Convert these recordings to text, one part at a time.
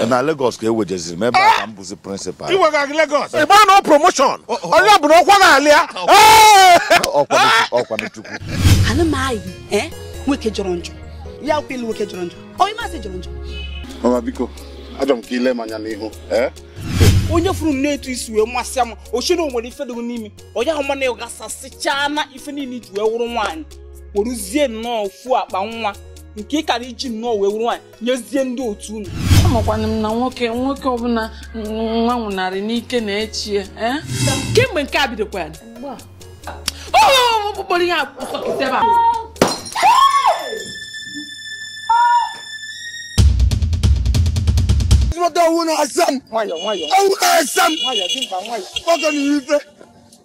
Eh. na Lagos ka e wejeziri m ebe a eh. ka prịnsịpal ịgba na promoshon onye na ọkwa na-alịa ọkwanchukwu eh. ana nwoke jọrọ njọ ya kwelu nwoke jọrọ njọ onye masị jọrọ njọ ọma biko ajọ m ka ile m onye furu na-etu isi wee masị m nwere ife n'ime onye ahụ mana gasasịchaa na ife niile iji wee wụrụ nwaanyị kpọrụzie nnọọ ofu akpa nwa nke ị kara iji nnọọ wee wụrụ nwaanyị nyezie ndị otu unu amakwana m na nwoke nwoke ọbụla nwa nwụnarị n'ike na-echi ya eh? kemgbe nke a bidokwana kpọrọ ihe akpọkọtebe ọwụ na-asa m ọwụ na-asa m nwoke na ihe ife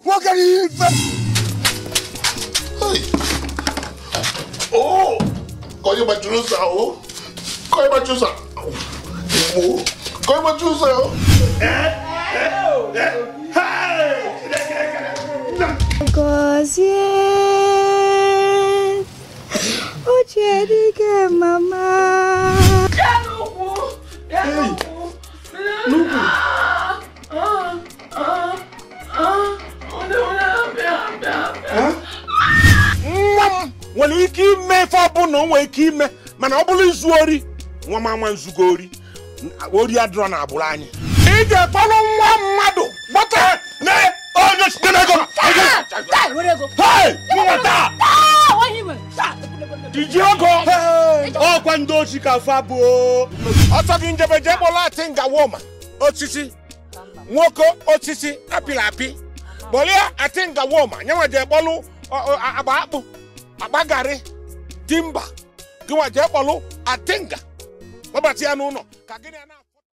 nwoke na ihe ife Oh, kọ́ yóò bá jùlọ sá o, kọ́ yóò bá jùlọ sá. amor. Como a tiozão. É? É? É? Because o Jerry quer mamar. Ei, Lugo. Ah, ah, ah, ah, nwa é nwere ike ime ife é o nwere ike ime mana é bụrụ izu ori nwa m é nzugo ori ori adịrọ na agbụrụ anyị Ije kpọrọ nwa mmadụ gbata na onye site n'ego iji ego ọkwa ndị ochi ka fa abụọ ọtọ gị njebe jee kpọrọ atị ngawoma osisi nwoke osisi apịrị apị kpọrịa atị ngawoma nyanwa jee kpọlụ agba akpụ agba garị dimba, gịnwa jee kpọlụ atịnga wabate ano no kagene ana